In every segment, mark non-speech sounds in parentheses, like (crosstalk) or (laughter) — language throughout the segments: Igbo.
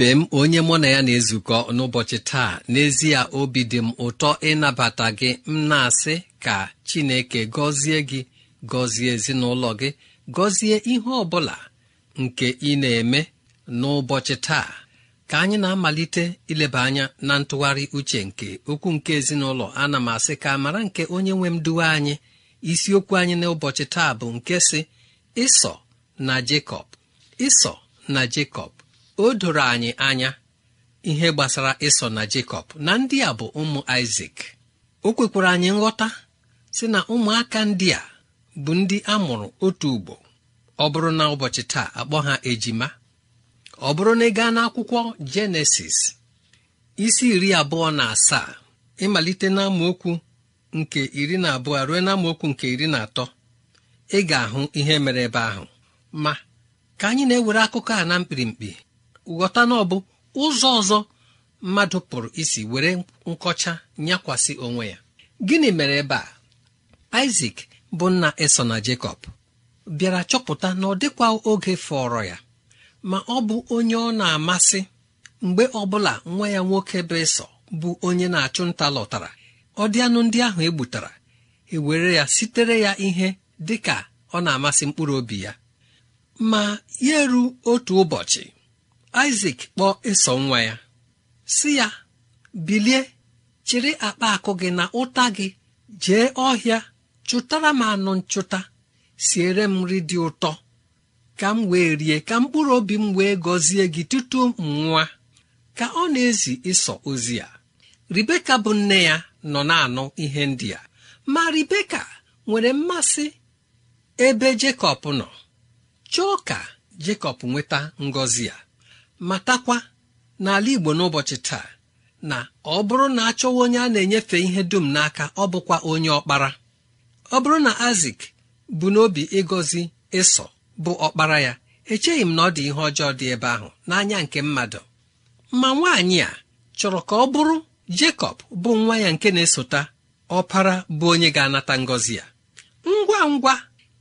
ibe m onye mụ na ya na-ezukọ n'ụbọchị taa n'ezie obi dị m ụtọ ịnabata gị m na-asị ka Chineke gọzie gị gọzie ezinụlọ gị gọzie ihe ọ bụla nke ị na-eme n'ụbọchị taa ka anyị na-amalite ileba anya na ntụgharị uche nke okwu nke ezinụlọ ana m asị ka mara nke onye nwe m duwe anyị isiokwu anyị n'ụbọchị taa bụ nke si ịsọ na Jekọb ịsọ na Jekọb o doro anyị anya ihe gbasara ịsọ na Jekọb na ndị a bụ ụmụ Isak o kwekwara anyị nghọta si na ụmụaka ndị a bụ ndị a mụrụ otu ugbo ọ bụrụ na ụbọchị taa akpọ ha ejima ọ bụrụ na ị gaa n'akwụkwọ Jenesis isi iri abụọ na asaa ịmalite n'amaokwu nke iri na abụọ ruo n'amaokwu nke iri na atọ ị ga-ahụ ihe mere ebe ahụ ma ka anyị na-ewere akụkọ a na mkpirimkpi ghọta na ọbụ bụ ụzọ ọzọ mmadụ pụrụ isi were nkọcha nyakwasị onwe ya gịnị mere ebe a isak bụ nna eso na Jakob, bịara chọpụta na ọ dịkwa oge fọrọ ya ma ọ bụ onye ọ na-amasị mgbe ọbụla nwa ya nwoke bụ ịsọ bụ onye na-achụ nta lọtara ọ dị anụ ndị ahụ egbutara ewere ya sitere ya ihe dị ka ọ na-amasị mkpụrụ obi ya ma ya eru otu ụbọchị isak kpọọ ịsọ nwa ya si ya bilie chịrị akpa akụ gị na ụta gị jee ọhịa chụtara m anụ nchụta siere m nri dị ụtọ ka m wee rie ka mkpụrụ obi m wee gọzie gị tutu m nwa ka ọ na-ezi ịsọ ozi ya ribeka bụ nne ya nọ na-anụ ihe ndị a ma ribeka nwere mmasị ebe jekọb nọ chọọ ka jekọb nweta ngọzi ya matakwa n'ala igbo n'ụbọchị taa na ọ bụrụ na achọwa onye a na-enyefe ihe dum n'aka ọ bụkwa onye ọkpara ọ bụrụ na azik bụ n'obi ịgọzi ịsọ bụ ọkpara ya echeghị m na ọ dị ihe ọjọọ dị ebe ahụ n'anya nke mmadụ ma nwaanyị a chọrọ ka ọ bụrụ Jekọb bụ nwa ya nke na-esota ọpara bụ onye ga-anata ngọzi ya ngwa ngwa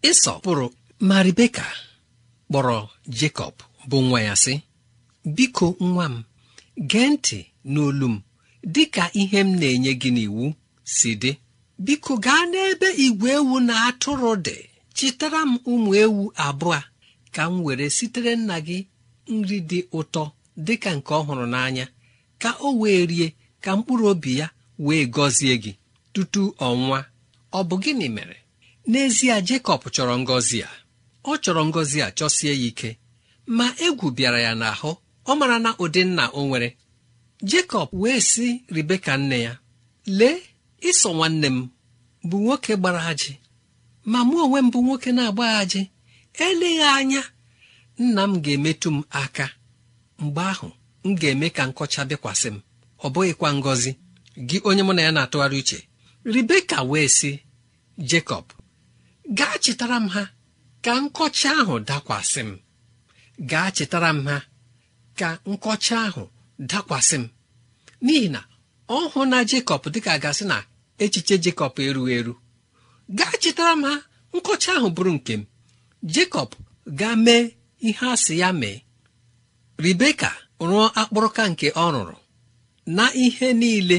ịsọ pụrụ ma kpọrọ Jekọb bụ nwa ya sị biko nwa m gee ntị n'olu m dịka ihe m na-enye gị n'iwu si dị biko gaa n'ebe igwe ewu na atụrụ dị chịtara m ụmụ ewu abụọ ka m were sitere nna gị nri dị ụtọ dịka nke ọhụrụ hụrụ n'anya ka o wee rie ka mkpụrụ obi ya wee gọzie gị tutu ọnwa ọ bụ gịnị mere n'ezie Jekọb chọrọ ngọzi a ọ chọrọ ngọzi a chọsie ya ike ma egwu bịara ya n'ahụ ọ mara na ụdị nna o nwere Jekọb wee sị Ribeka nne ya lee ịsọ nwanne m bụ nwoke gbara ajị ma mụ onwe m bụ nwoke na-agba ajị eleghị anya nna m ga-emetụ m aka mgbe ahụ m ga-eme ka nkọcha bịakwasị m ọ bụghịkwa ngọzi gị onye mụ na ya na-atụgharị uche Ribeka wee sị Jekọb gaa chetara m ha ka nkọcha ahụ dakwasị m gaa chetara m ha ka nkọcha ahụ dakwasị m n'ihi na ọ hụ na jekọb dịka gasị na echiche jekọb erughị eru gaa chetara m ha nkọcha ahụ bụrụ nke m jekọb gaa mee ihe a si ya mee ribeka rụọ akpụrụka nke ọ rụrụ na ihe niile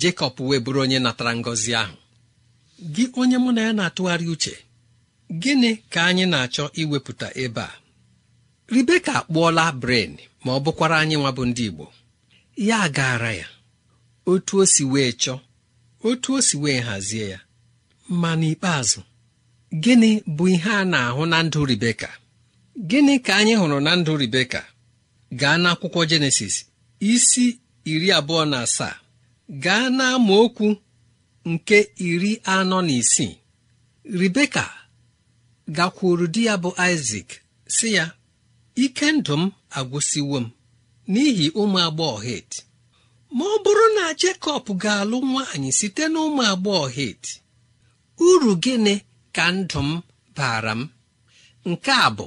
jekọb wee bụrụ onye natara ngọzi ahụ gị onye mụ na ya na-atụgharị uche gịnị ka anyị na-achọ iwepụta ebe a ribeka akpụọla bren ma ọ bụkwara anyị nwa bụ ndị igbo ya gaara ya otu o si wee chọọ otu o si wee hazie ya ma n'ikpeazụ gịnị bụ ihe a na-ahụ na ndụ ribeka gịnị ka anyị hụrụ na ndụ ribeka gaa n'akwụkwọ jenesis isi iri abụọ na asaa gaa n'amaokwu nke iri anọ na isii ribeka gakwuru di ya bụ isak si ya ike ndụ m agwụsịwo m n'ihi ụmụ agbọghọ het ma ọ bụrụ na Jekọb ga-alụ nwaanyị site na ụmụ agbọghọ het uru gịnị ka ndụ m baara m nke a bụ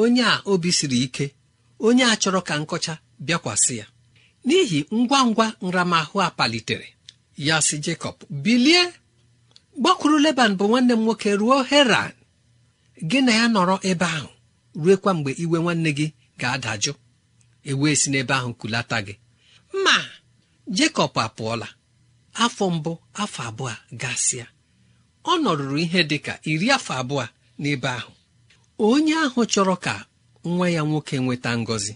onye a obi siri ike onye a chọrọ ka nkọcha bịakwasị ya n'ihi ngwa ngwa nramahụ a palitere ya si Jekọb bilie gbakwuru Leban bụ nwanne m nwoke ruo Heran gị na ya nọrọ ebe ahụ ruekwa mgbe iwe nwanne gị ga-adajụ ewee si n'ebe ahụ kulata gị ma jekọb apụọla afọ mbụ afọ abụọ gasịa ọ nọrụrụ ihe dị ka iri afọ abụọ n'ebe ahụ onye ahụ chọrọ ka nwa ya nwoke nweta ngọzi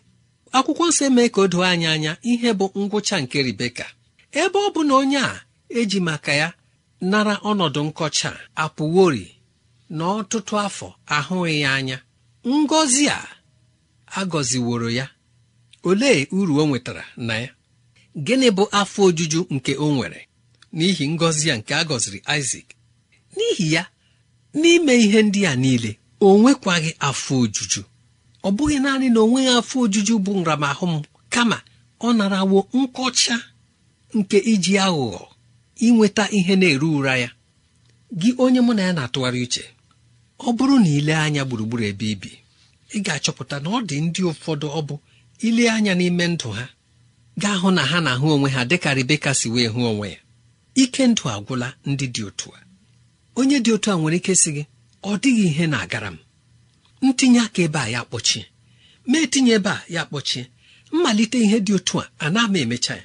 akwụkwọ nsọ emee ka o doo anyị anya ihe bụ ngwụcha nke ribeka ebe ọ bụ na onye a eji maka ya nara ọnọdụ nkọcha apụwori na ọtụtụ afọ ahụghị ya anya ngọzi a agọziworo ya olee uru o nwetara na ya gịnị bụ afọ ojuju nke o nwere n'ihi ngọzi a nke a gọziri n'ihi ya n'ime ihe ndị a niile o nwekwaghị afọ ojuju ọ bụghị naanị na onweghị afọ ojuju bụ nramahụ m kama ọ narawo nkọcha nke iji aghụghọ inweta ihe na-eru ụra ya gị onye mụ na ya na-atụgharị uche ọ bụrụ na ile anya gburugburu ebe ibi ị ga-achọpụta na ọ dị ndị ụfọdụ ọ bụ ile anya n'ime ndụ ha gaa hụ na ha na-ahụ onwe ha dịka Rebeka si wee hụ onwe ya ike ndụ agwụla ndị dị otu a onye dị otu a nwere ike sị gị ọ dịghị ihe na-agara m ntinye aka ebe a ya kpọchie ma etinye ebe a ya kpọchie mmalite ihe dị otu a a na-ama emecha ya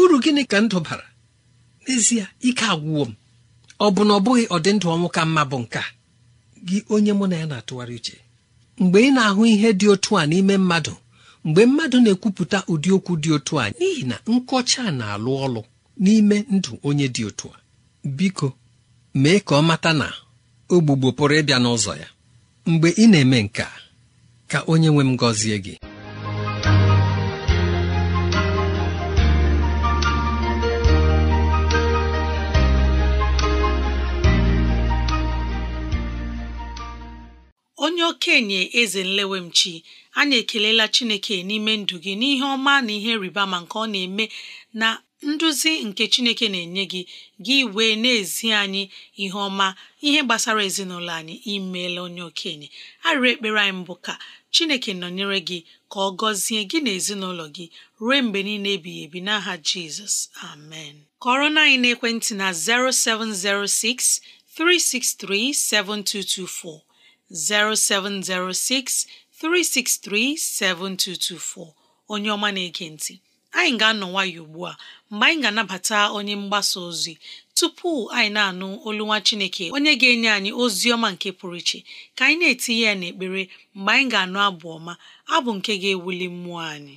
uru gịnị ka ndụ bara n'ezie ike agwụwo m ọ bụ na ọ bụghị ọdịndụ ọnwụ ka mma bụ nke a gị onye mụ na ya na-atụgharị uche mgbe ị na-ahụ ihe dị otu a n'ime mmadụ mgbe mmadụ na-ekwupụta ụdị okwu dị otu a n'ihi na nkọcha na-alụ ọlụ n'ime ndụ onye dị otu a biko mee ka ọ mata na ogbugbo pụrụ ịbịa n'ụzọ ya mgbe ị na-eme nke ka onye nwe m gọzie gị onye okenye eze nlewemchi anyị ekelela chineke n'ime ndụ gị n'ihe ọma na ihe rịba ma nke ọ na-eme na nduzi nke chineke na-enye gị gị wee na-ezi anyị ihe ọma ihe gbasara ezinụlọ anyị imeela onye okenye arịrị ekpere anyị mbụ ka chineke nọnyere gị ka ọ gọzie gị na ezinụlọ gị ruo mgbe niile ebighị ebi n'aha jizọs amen kọrọ na anyị n'ekwentị na 0706 363 7224 0706 7224 onye ọma na-ege ntị anyị ga-anọ nwayọ ugbu a mgbe anyị ga-anabata onye mgbasa ozi tupu anyị na-anụ olu nwa Chineke onye ga-enye anyị ozi ọma nke pụrụ iche ka anyị na-etinye ya n'ekpere mgbe anyị ga-anụ abụ ọma abụ nke ga-ewuli mmụọ anyị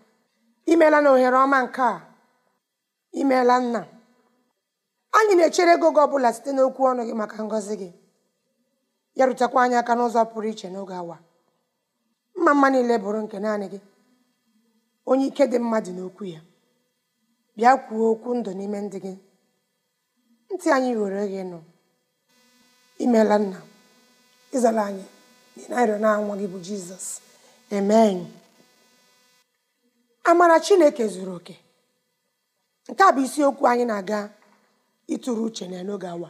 imeela na ohere ọma nke a imeela nna anyị na-echere ego gị ọbụla site n'okwu ọnụ gị maka ngọzi gị ya rutekwa anyị aka n'ụzọ pụrụ iche n'oge awa mma mma niile bụrụ nke naanị gị onye ike dị mmadụ n'okwu ya bịa kwuo okwu ndụ n'ime ndị gị ntị anyị were gị nụ imeela nna ịzala anyị na ịrịọ na nwa gị bụ jizọs amen amara chineke zuru oke nke a bụ isiokwu anyị na-aga ịtụrụ uche na n'oge awa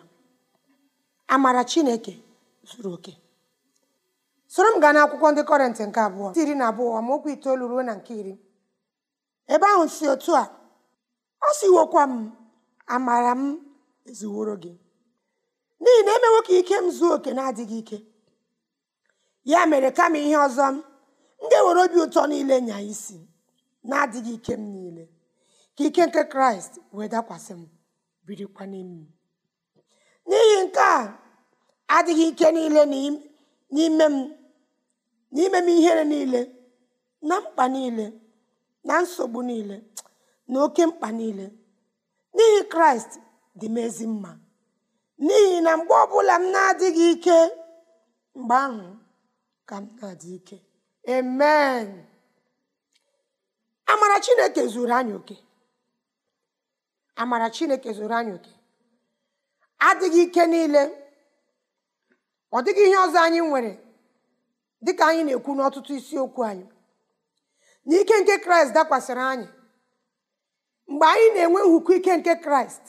amara chineke zuru oke soro m gaa n'akwụkwọ ndị kọrentị nke abụọ iri na abụọ amaokwu itoolu ruo na nke iri ebe ahụ si otu a ọ siwokwa m amara m ezuworo gị n'ihi na emewo ka ike m zuo oke na-adịghị ike ya mere kama ihe ọzọ m ndị ewere obi ụtọ niile nya isi na-adịghị ike m niile ka ike nke kraịst wee dakwasị m birikwa n'ime m n'ihi nke a adịghị ike niile n'ime m n'ime m ihere niile na mkpa niile na nsogbu niile na oke mkpa niile n'ihi kraịst dị m mma n'ihi na mgbe ọbụla m na-adịghị ike mgbe ahụ ka m na-adị ike amen amara chineke zuru anyị oke amara chineke zuru anyị oke adịghị ike niile ọ dịghị ihe ọzọ anyị nwere dị ka anyị na-ekwu n'ọtụtụ isiokwu anyị na ike nke kraịst dakwasịrị anyị mgbe anyị na-enwe nhụkọ ike nke kraịst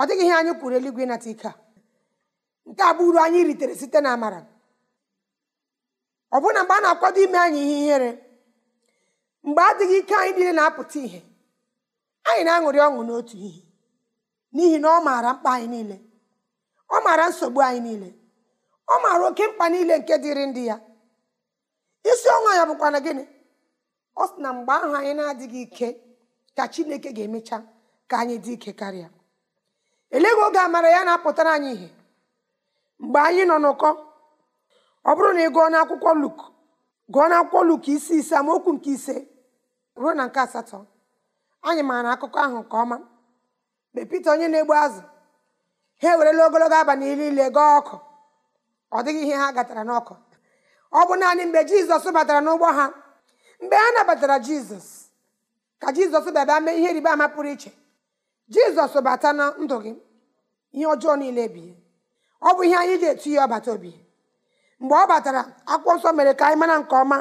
ọ dịghị ihe anyị kwuru eluigwe ịnata ike a nke a bụ uru anyị ritere site na amara ọ mgbe a na-akwado ime anyị ihe ihere mgbe adịghị ike anyị niile na-apụta ihe anyị na-aṅụrị ọṅụ n'otu ihe n'ihi na ọ maara mkpa anyị niile ọ maara nsogbu anyị niile ọ maara oke mkpa niile nke dịrị ndị ya isi ọnwa ya bụkwa na gịnị ọ sị na mgbe ahụ anyị na-adịghị ike ka chineke ga-emecha ka anyị dị ike karịa eleghị oge amara ya na-apụtara anyị ihe mgbe anyị nọ n'ụkọ ọ bụrụ na ị gụọ n'akwụkwọ Luk gụọ n'akwụkwọ Luk isi ise amaokwu nke ise ruo na nke asatọ anyị maara akụkọ ahụ nke ọma mgbe peter onye na-egbu azụ ha ewerela ogologo abalị niile gaa ọkụ ọ dịghị ihe ha gatara n'ọkụ ọ bụ naanị mgbe jizọs batara n'ụgbọ ha mgbe ha nabatara jizọs ka jizọs bịaba mee ihe riba ama pụrụ iche jizọs bata na ndụ gị ihe ọjọọ niile bie ọ bụ ihe anyị ji etu ya ọbata obi mgbe ọ batara akwụkwọ nsọ mere ka anyị mara nke ọma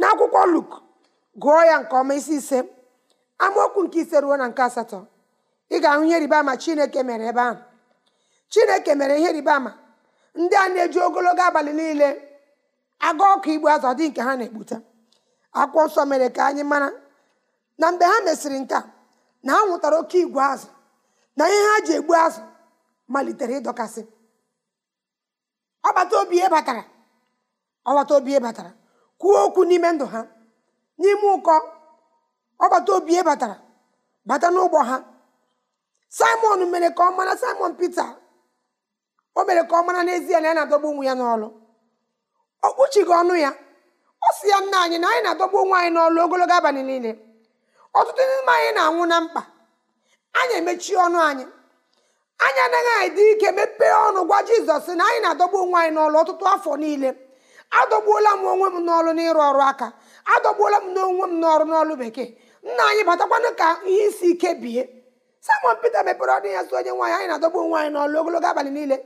n'akwụkwọ Luk gụọ ya nke ọma isi ise amaokwu nke ise ruo na nke asatọ ị ga-ahụ ihe ribama ama chineke mere ebe ahụ chineke mere ihe ribama ama ndị a na-eji ogologo abalị niile aga ọkụ igbu azụ dị nke ha na-egbute akwụkwọ nsọ mere ka anyị mara na mgbe ha mesịrị nke a na ha nwụtara oke igwe azụ na ihe ha ji egbu azụ malitere ịdọkasị ọbata obi e batara ọbata obi e batara kwuo okwu n'ime ndụ ha n'ime ụkọ bata obi e batara bata n'ụgbọ ha simon mere ka ọ mara simon pete o mere ka ọ mara n'ezie na ya na-adọgbu onwe ya n'ọlụ ọ kpuchighị ọnụ ya ọ si ya nna anyị na anyị na-adọgbu onwe anyị n'ọlụ ogologo abalị niile ọtụtụ n'ime anyị na-anwụ na mkpa anyị emechie ọnụ anyị anyị anaghị anyị dị ike mepee ọnụ gwa jizọs na anyị na-adọgbu onwe anyị n'ọlụ ọtụtụ afọ niile adọgbuola m onwe m n'ọlụ n'ịrụ ọrụ aka adọgbuola m n'onwe m n'ọrụ n'ọrụ bekee nna anyị batakwanụ ka ihe isi ike bie Simon mepere ọnụ ya sụ onye nwaanyị anyị na-adọgbu onwe anyị n'ọlụ ogologo abalị niile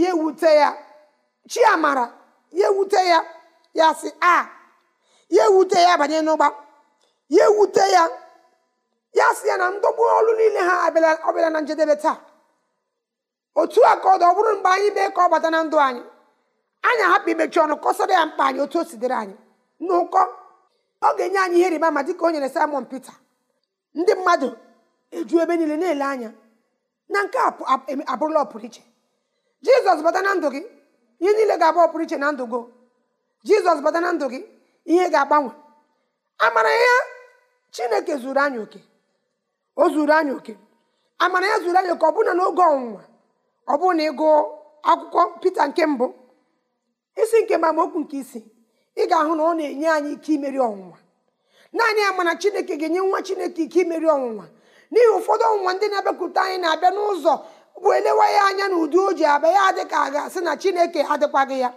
ya ewute ya chiamara ya ewute ya ya sị a ya ewute ya banye n'ụgba ya ewute ya ya sị ya na ndọgbu ọlụ niile ha ọbịala na njedebe taa otu a ka ọ ọ bụrụ mgbe anyị mee ka ọ bata na ndụ anyị anyị ahapụ imechi ọnụ kọsara ya mkpa anyị otu o si anyị n'ụkọ ọ ga-enye anyị ihe rịba ama dịka o nyere Simon Peter ndị mmadụ eju ebe niile na-ele anya na nke abụrụla ọpụrụiche jizọs bata na ndụ gị ihe niile ga-abụ ọpụrụiche na ndụ gị jizọs bata na ndụ gị ihe ga-agbanwe amara ya chineke zuru anya oke o zuru anya oke amara ya zuru anya oke n'oge ọnwụnwa ọ bụụ na ịgụ akwụkwọ pete nke mbụ isi nke ma amaokwu nke isi. ị ga-ahụ na ọ na-enye anyị ike imeri ọnwụnwa naanị ya mana chineke ga-enye nwa chineke ike imeri ọnwụnwa n'ihi ụfọdụ ọnwụnwa ndị na-abịakwute anyị na-abịa n'ụzọ bụ elewa ya anya na ụdị o ji abịa ya dị ka a ga-asị na chineke adịkwaghị ya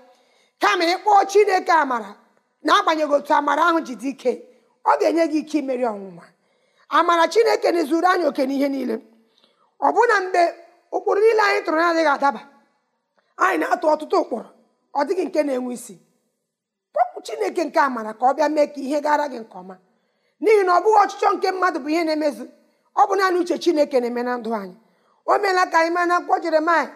kama ịkpọọ chineke amara na-agbanyeghị otu amara ahụ ji dị ike ọ ga-enye gị ike imeri ọnwụnwa amara chineke na zuru anyị oke n'ihe niile ọ bụ na mgbe ụkpụrụ niile anyị tụrụ na-adịghị adaba anyị na-atụ ọtụtụ ụkpụrụ ọ dịghị nke na-enwe isi chineke nke amara ka ọ bịa mee ka ihe gara gị nke ọma n'ihi na ọ bụghị ọchịchọ nke mmadụ bụ ihe na emezi ọ bụ naanị uche chineke na-eme na ndụ anyị o meela ka anyị maa na akwụkwọ jeremaya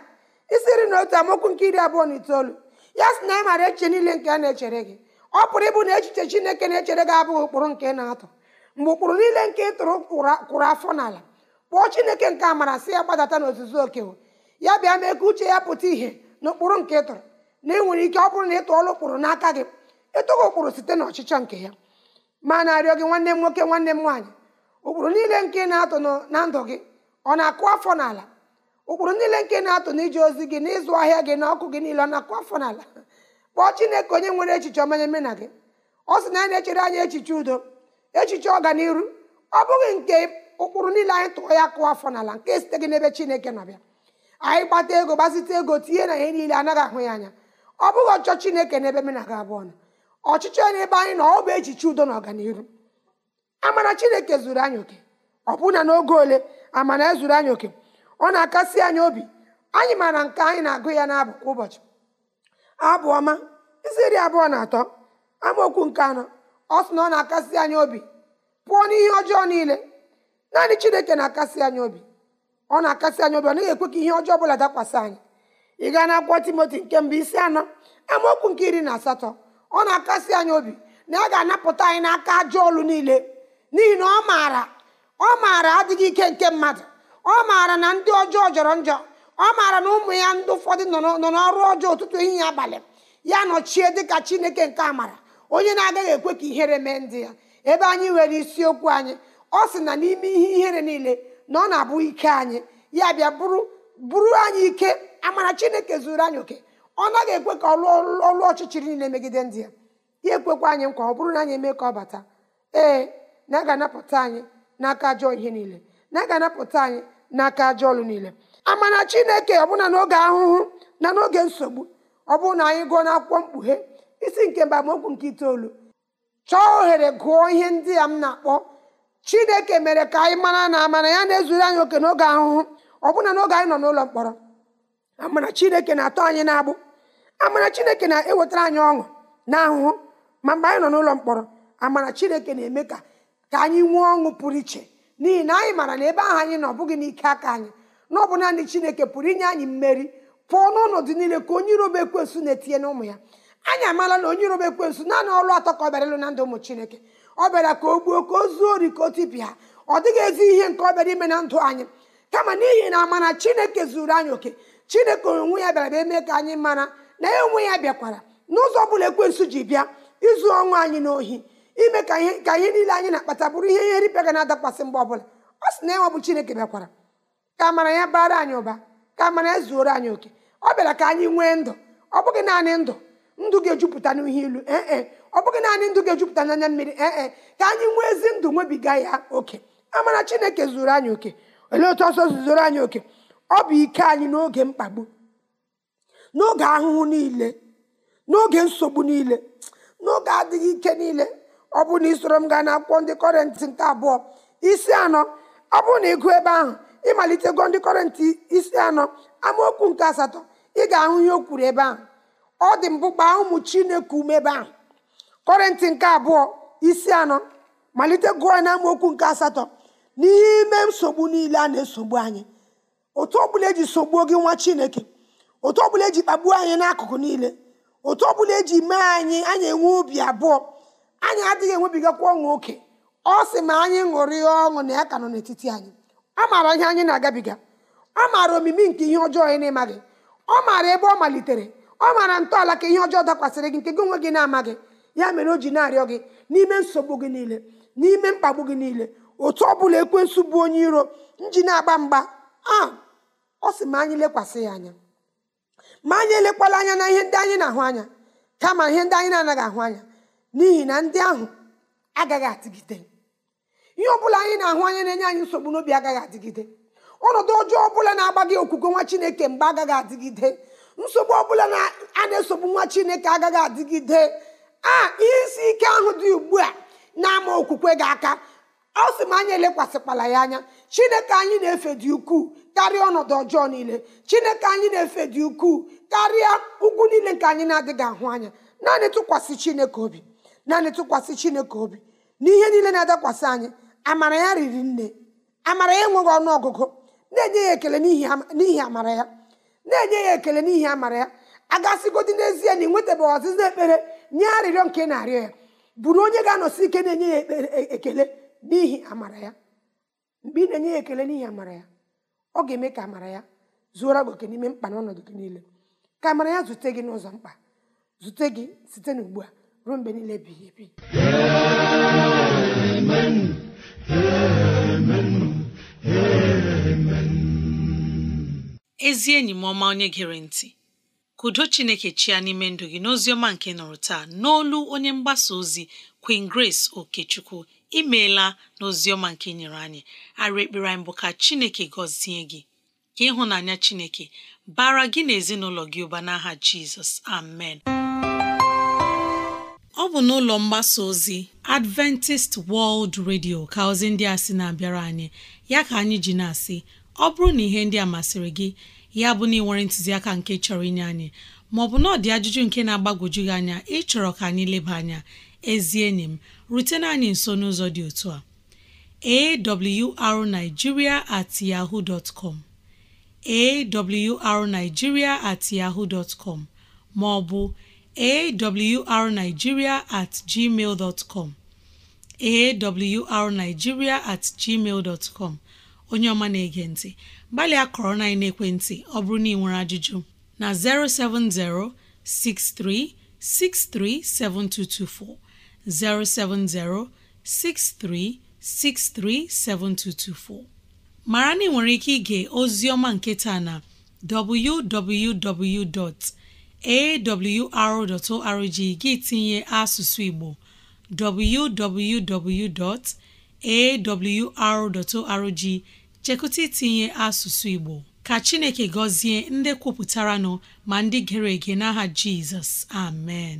isiri na otu amaokwu nke iri abụọ na itoolu ya sị na ị maara echiche niile nke a na-echere gị ọ pụrụ ịbụ na echiche chineke na-echere gị abụghị ụkpụrụ nke na-atụ mgbe ụkpụrụ niile nke ị tụrụ kwụrụ afọ n'ala kpọọ chineke nke amara si ya gbadata n'ozuzu okewo ya bịa mee ka uche ya pụta ìhè na ụkpụrụ nke ị tụrụ na nwere ike ọ bụrụ na ị tụọla ụkpụrụ n'aka gị etogo kwuru site n'ọchịchọ nke ya ma na-arịọ gị nwanne m nwoke nwanne m nwaanyị ụkpụrụ niile nke na-atụ na ndụ gị ọ na-akụ afọ n'ala ụkpụrụ niile nke na-atụ iji ozi gị n'ịzụ ahịa gị na ọkụ gị niile ọ na-akụ afọ n'ala (laughs) kpọọ Chineke onye nwere echiche ọmanyeme mena gị ọ sị na ya na-echere anya echiche udo echiche ọganiru ọ bụghị nke ụkpụrụ niile anyị tụọ ya kụọ afọ n'ala nke site gị n'ebe Chineke na-abịa anyị gbata ego gbazite ego tinye na ihe niile anaghị ahụ ya anya ọ bụghị ọchọ Chineke n'ebe m gị abụọ ọchịchị na ebe anyị na ọ bụ echiche udo na ọganihu amara chineke zuru anyị oke ọbụna n'oge ole amara ezuru anyị oke ọ na-akasi anyị obi anyị mara nke anyị na-agụ ya n'abụ kwa ụbọchị abụ ọma isi iri abụọ na atọ amaokwu nke anọ ọ sị na ọ na-akasi anyị obi pụọ n'ihe ọjọọ niile naanị chineke na-akasi anyị obi ọ na-akasi anyị obi ọ naghị ekwe ka ihe ọjọọ ọbụla dakwasị anyị ị gaa na akwụkwọ timoti nke mbụ isi anọ amaokwu nke iri na asatọ ọ na-akasi anyị obi na ya ga-anapụta anyị n'aka ajọ olu niile n'ihi na ọ maara ọ maara adịghị ike nke mmadụ ọ maara na ndị ọjọọ jọrọ njọ ọ maara na ụmụ ya ndị ụfọdụ nọ n'ọrụ ọjọọ ụtụtụ ehihie abalị ya nọchie dịka chineke nke amara onye na-agaghị ekwe ka ihere mee ndị ya ebe anyị nwere isiokwu anyị ọ sị na n'ime ihe ihere niile na ọ na-abụ ike anyị ya bịa bụrụ bụrụ anyị ike amara chineke zuru anyị oke ọ naghị ekwe ka ọlụ ọlụ ọchịchịrị niile megide ndị ya ya ekwekwa anyị nkwa ọ bụrụ na anyị eme ka ọ bata ee na a ga-anapụta anyị n'aka ajọ ihe niile na aga anapụta anyị n'aka ajọ ọlụ niile amana chineke ọbụna n'oge ahụhụ na n'oge nsogbu ọ bụrụ na anyị gụọ n'akwụkwọ mkpughe isi nke mba Mokwu nke itoolu chọọ ohere gụọ ihe ndị a m na-akpọ chineke mere ka anyị mara na amana ya na-ezuru anyị oke n'oge ahụhụ ọbụna n'oge anyị nọ n'ụlọ mkpọrọ amana chineke na-atọ anyị na-agbụ amara chineke na-ewetara anyị ọṅụ na ahụhụ ma mgbe anyị nọ n'ụlọ mkpọrọ amara chineke na-eme ka ka anyị nwee ọṅụ pụrụ iche n'ihi na anyị mara na ebe ahụ anyị nọ ọ bụghị n'ike aka anyị na ọ bụ naanị chineke pụrụ inye anyị mmeri pụọ n'ọnọdụ niile ka onye irobe ekwensu na-etinye n'ụmụ ya anyị amaala na onye irobe ekwensu naanị ọlụ atọ ka ọ bịara na ndụ ụmụ chineke ọ bịara ka o gbuo ka o zuo ori ka o tipịa ọ dịghị ezi ihe nke ọ bịara ime na ndụ anyị kama n'ihi na amara chineke zuru anyị oke chineke onwe ya bịara eme ka anyị mara na enwe onwe ya bịakwara n'ụzọ bụla ekwensu ji bịa izu ọnwụ anyị n'ohi ime ka ihe ka ihe niile anyị na-akpata bụrụ ihe ihe ripịa ga na-adakwasị mgbe ọbụla ọ sị na ya bụ chineke bịakwara ka amara ya bara anyị ụba ka amara ya zuoro anyị oke ọ bịara ka anyị nwee ndụ ọ bụghị naanị ndụ ndụ ga-ejupụta n'ihe ilu ee e. ọ bụghị naanị ndụ ga-ejupụta n'anya mmiri ee e. ka anyị nwee ezi ndụ nwebiga ya oke amara chineke zuru anyị oke olee otu ọsọ zuzoro anyị oke ọ bụ ike anyị n'oge mkpagbu n'oge ahụhụ niile n'oge nsogbu niile n'oge adịghị ike niile ọ bụ na isoro m gaa na n'akwụkwọ ndị kọrentị nke abụọ isi anọ ọ bụrụ na ịgụ ebe ahụ gụọ ndị kọrentị isi anọ amaokwu nke asatọ ị ga-ahụ ihe o kwuru ebe ahụ ọ dị mbụ gbaa ụmụ chineke ume ebe ahụ kọrentị nke abụọ isi anọ malite gụọ na amaokwu nke asatọ n'ime nsogbu niile a na-esogbu anyị otu ọ bụla eji sogbuo gị nwa chineke otu ọbụla eji kpagbuo anyị n'akụkụ niile otu ọbụla eji mee anyị anyị enwe obi abụọ anyị adịghị enwebigakwa ọṅụ oke ọ sị ma anyị ṅụrịa ọṅụ na ya ka nọ n'etiti anyị ọ maara ihe anyị na-agabiga ọ maara omimi nke ihe ọjọọ anyị na-amaghị ọ maara ebe ọ malitere ọ maara ntọala ka ihe ọjọọ dakwasịrị gị nke gị onwe gị na-amaghị ya mere o ji na-arịọ gị n'ime nsogbu gị niile n'ime mkpagbu gị niile otu ọ bụla ekwensu bụ onye iro nji na-agba mgba a ọ sị ma anyị lekwasị ya anya ma anyị elekwala anya na ihe ndị anyị na-ahụ anya kama ihe ndị anyị na-anaghị ahụ anya n'ihi na ndị ahụ agaghị adịgide ihe ọbụla anyị na-ahụ anya na-enye anyị nsogbu n'obi agaghị adịgide ọnọdụ ọjọọ ọbụla na-agba gị okwukwe nwa chineke mgbe agaghị adịgide nsogbu ọbụla a na-esogbu nwa chineke agaghị adịgide a ah, ihe isi ike ahụ dị ugbu a na-ama okwukwe gị aka ọ sị m anya elekwasịkwala ya anya chineke anyị na-efe dị ukwuu karịa ọnọdụ ọjọọ niile chineke anyị na-efe dị ukwuu karịa ugwu niile nke anyị na-adịghị ahụ anya naanị tụkwasị chineke obi naanị tụkwasị chineke obi n'ihe niile na-adakwasị anyị amara ya riri nne amara ya enweghị ọnụ ọgụgụ na-enye ya ekele n'ihi amara ya na-enye ya ekele n'ihi amara ya agasịgodi n'ezie na ị nwetabeghị ọzịza ekpere nye arịrịọ nke na-arịọ ya bụrụ onye ga-anọsi ike na-enye ya e, ekele n'ihi amara ya mgbe ị na-enye ya ekele n'ihi amara ya ọ ga-eme ka amara ya zuora gị n'ime mkpa na ọnọdụ gị niile ka amara ya zute gị n'ụzọ mkpa zute gị site n'ugbu a ruo mgbe niile ebighị ebi ezi enyi m ọma onye gere ntị kudo chineke chia n'ime ndụ gị n'ozi ọma nke nụrụ taa n'olu onye mgbasa ozi Queen Grace Okechukwu imeela n'oziọma nke e nyere anyị ara ekpere anyị bụ ka chineke gọzie gị ka ịhụnanya chineke bara gị na ezinụlọ gị ụba n'aha jizọs amen ọ bụ n'ụlọ mgbasa ozi Adventist World Radio ka ozi ndị a sị na-abịara anyị ya ka anyị ji na-asị ọ bụrụ na ihe ndị a masịrị gị ya bụ na ịnwere ntụziaka nke chọrọ inye anyị maọbụ na ọ dị ajụjụ nke na-agbagwoju gị anya ịchọrọ ka anyị leba anya ezi enyi m rutena anyị nso n'ụzọ dị otu a awrnigeria at at yahoo maọbụ ma ọ bụ awrnigeria at gmail com awrnigeria at gmail onye ọma na-ege ntị gbalịa kọrọ na ekwentị ọ bụrụ na ị nwere ajụjụ na 070 63 7224 07063637224 mara na ị nwere ike ige ozi ọma nke taa na www.awr.org gị tinye asụsụ Igbo www.awr.org chekụta itinye asụsụ Igbo ka Chineke gọzie ndị kwupụtara nọ ma ndị gere ege n'aha Jizọs amen